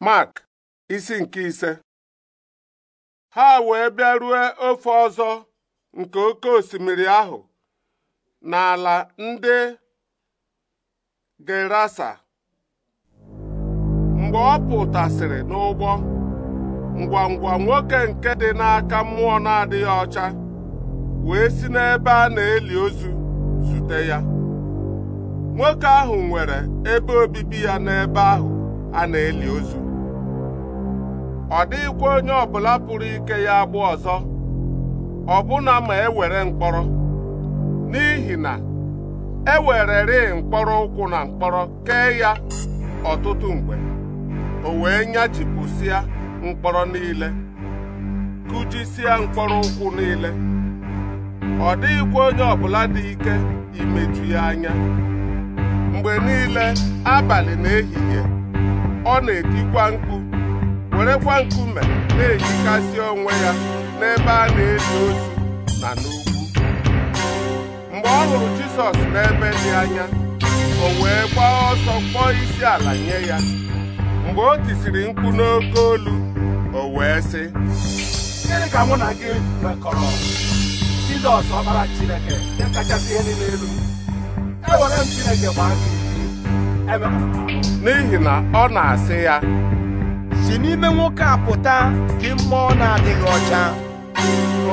Mark isi nke ise ha wee bịarue ofe ọzọ nke oke osimiri ahụ n'ala ndị Gerasa mgbe ọ pụtasịrị n'ụgbọ ngwa ngwa nwoke nke dị n'aka mmụọ na-adịghị ọcha wee si n'ebe a na-eli ozu zute ya nwoke ahụ nwere ebe obibi ya n'ebe ahụ a na-eli ozu ọ dịghịkwa onye ọbụla pụrụ ike ya agbụ ọzọ ọbụna ma ewere mkpọrọ n'ihi na e wererị mkpọrọ ụkwụ na mkpọrọ kee ya ọtụtụ mgbe o wee nyachipụsịa mkpọrọ niile kụjisịa mkpọrọ ụkwụ niile ọ dịghịkwa onye ọbụla dị ike imeju ya anya mgbe niile abalị na ehihie ọ na-etikwa mkpu werekwa nkume na-ejikasị onwe ya n'ebe a na-eli otu na n'ugwu mgbe ọ hụrụ Jizọs n'ebe dị anya o wee gbaa ọsọ kpọọ isi ala nye ya mgbe o tisiri mkpu n'oke olu o wee sị gịnị ka mụ na gị mekọrọ Jizọs ọkpara Chineke nke kachasị ihe niile elu ewere m Chineke gbaa gị n'ihi na ọ na-asị ya si n'ime nwoke a pụta dị mmụọ na-adịghị ọcha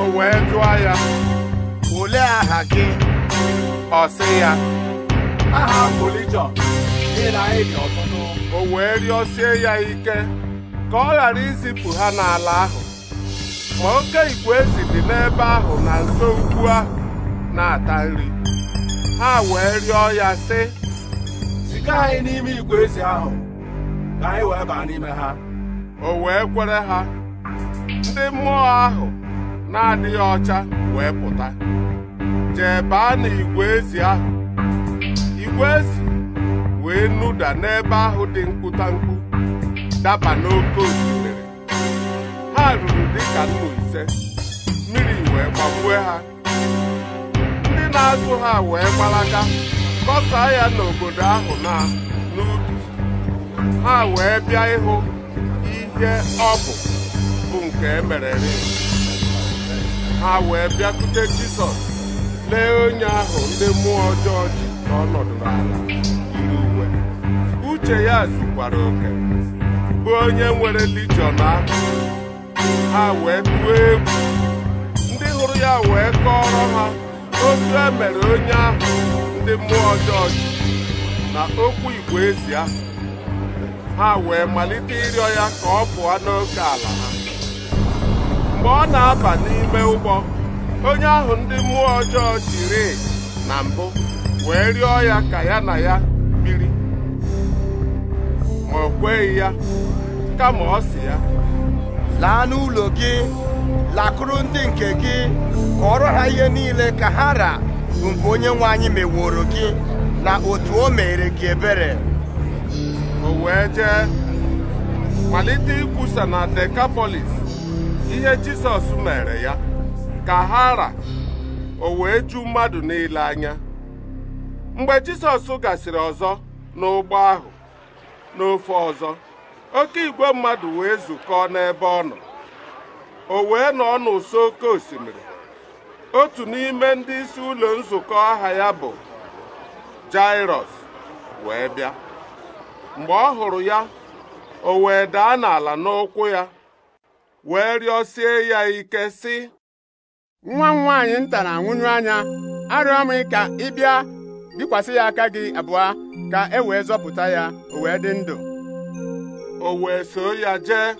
o wee jụọ ya olee aha gị ọ sị ya aha ọtụtụ o wee rịọsie ya ike ka ọ ghara izipụ ha n'ala ahụ ma oke igwe ezi dị n'ebe ahụ na nso ukwu ahụ na-ata nri ha wee rịọ ya sị kpọga anyị n'ime igwe ezi ahụ ka anyị wee baa n'ime ha o wee kwere ha ndị mmụọ ahụ na-adịghị ọcha wee pụta jee baa n'igwe ezi ahụ igwe ezi wee nụda n'ebe ahụ dị mkpụtamkpụ daba n'oke osimiri ha ruru dịka nnu ise mmiri wee gbagbue ha ndị na-azụ ha wee gbalaga kọsaa ya n'obodo ahụ na n'ubi ha wee bịa ịhụ ihe ọ bụ bụ nke emerere ha wee bịakute Jisọs lee onye ahụ ndị mmụọ ọjọọ ji ka ọ ala yiri uwe uche ya zikwara oke bụ onye nwere lijiọn ahụ ha wee tụọ egwu ndị hụrụ ya wee kọọrọ ha otu emere onye ahụ ndị mmụọ ọjọọ na okwu igwe ezi ahụ ha wee malite ịrịọ ya ka ọ pụọ n'oke ala ha mgbe ọ na-aba n'ime ụgbọ onye ahụ ndị mmụọ ọjọọ jiri na mbụ wee rịọ ya ka ya na ya biri ma o kweghị ya kama ọ si ya laa n'ụlọ gị lakụrụ ndị nke gị kọọrọ ha ihe niile ka ha bụ nke onye nwe anyị meworo gị na otu o mere gị ebere o wee jee malite ikwusa na Dekapolis ihe Jisọs mere ya ka ha ra o wee ju mmadụ niile anya mgbe Jisọs gasịrị ọzọ n'ụgbọ ahụ n'ofe ọzọ oke igwe mmadụ wee zukọọ n'ebe ọ nọ o wee nọ n'ụsọ oke osimiri otu n'ime ndị isi ụlọ nzukọ aha ya bụ Jairus wee bịa mgbe ọ hụrụ ya o wee daa n'ala n'ụkwụ ya wee rịọsie ya ike sị nwa m nwaanyị nta na anya arịọ m ka ị bịa bikwasị ya aka gị abụọ ka e wee zọpụta ya o wee dị ndụ o wee so ya jee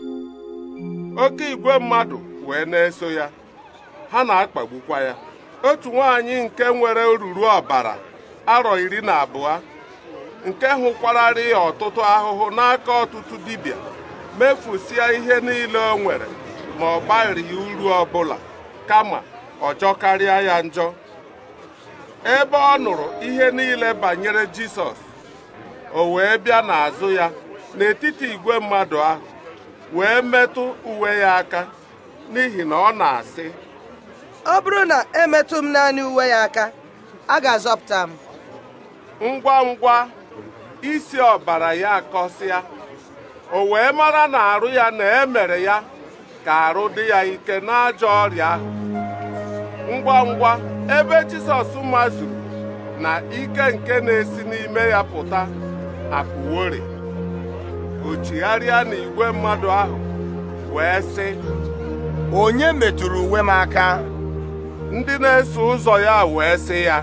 oke igwe mmadụ wee na-eso ya ha na-akpagbukwa ya otu nwaanyị nke nwere oruru ọbara arọ iri na abụọ nke hụkwararị ya ọtụtụ ahụhụ n'aka ọtụtụ dibịa mefusịa ihe niile o nwere ma ọ gbarịghị uru ọbụla kama ọjọ karịa ya njọ ebe ọ nụrụ ihe niile banyere Jisọs o wee bịa n'azụ ya n'etiti igwe mmadụ ahụ wee metụ uwe ya aka n'ihi na ọ na-asị ọ bụrụ na emetụ m naanị uwe ya aka a ga-azọpụta m ngwa ngwa isi ọbara ya kọsịa, o wee mara na arụ ya na emere ya ka arụ dị ya ike n'ajọ ọrịa ahụ ngwa ngwa ebe Jisọs mazuru na ike nke na-esi n'ime ya pụta apụwori o chigharịa igwe mmadụ ahụ wee sị onye metụrụ uwe m aka ndị na-eso ụzọ ya wee sị ya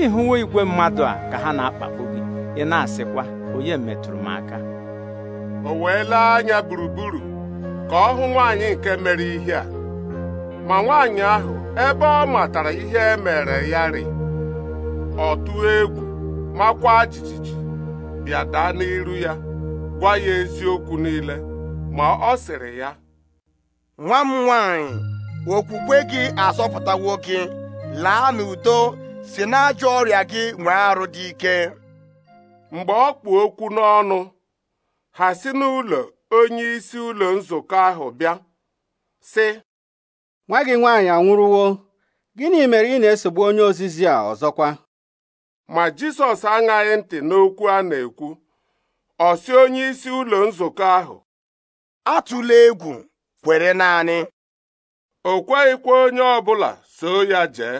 ịhụwo igwe mmadụ a ka ha na-akpagbu gị ị na-asịkwa onye metụrụ m aka o wee lee anya gburugburu ka ọ hụ nwaanyị nke mere ihe a ma nwaanyị ahụ ebe ọ matara ihe e mere ya rị ọ egwu makwa jijiji bịa daa n'iru ya gwa ya eziokwu niile ma ọ sịrị ya nwa m nwaanyị okwukwe gị azọpụtawo gị laa n'udo si n'ajọ ọrịa gị nwee arụ dị ike mgbe ọ kpụ okwu n'ọnụ ha si n'ụlọ onye isi ụlọ nzukọ ahụ bịa sị nwa gị nwaanyị anwụrụwo gịnị mere ị na-esogbu onye ozizi a ọzọkwa ma Jisọs aṅaghị ntị n'okwu a na-ekwu ọ si onye isi ụlọ nzukọ ahụ atụla egwu kwere naanị o kweghịkwa onye ọbụla so ya jee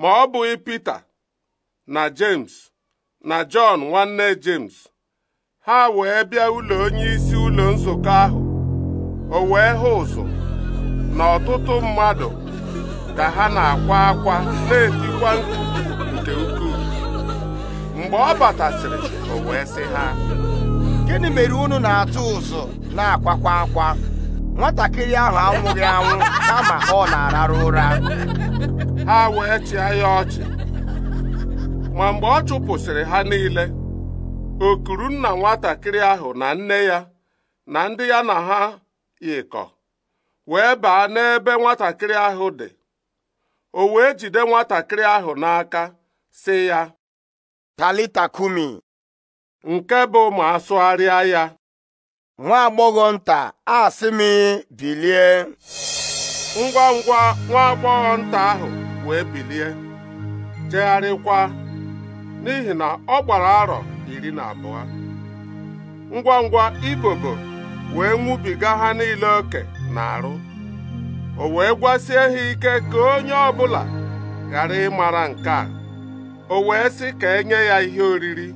ma ọ bụghị Pita na James na Jọn nwanne James ha wee bịa ụlọ onyeisi ụlọ nzukọ ahụ o wee hụ ụzụ na ọtụtụ mmadụ ka ha na-akwa akwa na-etikwa nke ukwuu mgbe ọ batasịrị o wee sị ha gịnị mere unu na-atụ ụzụ na-akwakwa akwa nwatakịrị ahụ anwụghị anwụ kama ọ na-ararụ ụra ha wee chịa ya ọchị ma mgbe ọ chụpụsịrị ha niile o kuru nna nwatakịrị ahụ na nne ya na ndị ya na ha yikọ wee baa n'ebe nwatakịrị ahụ dị o wee jide nwatakịrị ahụ n'aka sị ya talita kumi nke bụ ma asụgharịa ya nwa nta a m bilie ngwa ngwa nwa agbọghọ nta ahụ wee bilie jegharịkwa n'ihi na ọ gbara arọ iri na abụọ ngwa ngwa ibobo wee nwụbiga ha niile oke na arụ o wee gwasie ha ike ka onye ọ bụla ghara ịmara nke a o wee sị ka enye ya ihe oriri